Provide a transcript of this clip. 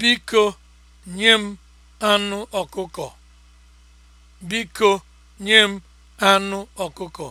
Biko nye m anụ ọkụkọ.